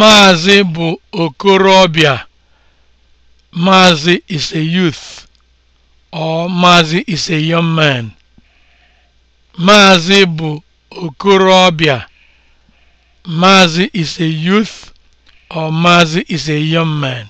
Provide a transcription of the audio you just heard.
Maazị bụ okorobịa, Maazị is a youth or Maazị is a young man. Maazị bụ okorobịa, Maazị is a youth or Maazị is a young man.